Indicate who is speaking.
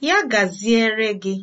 Speaker 1: Ya gaziere gị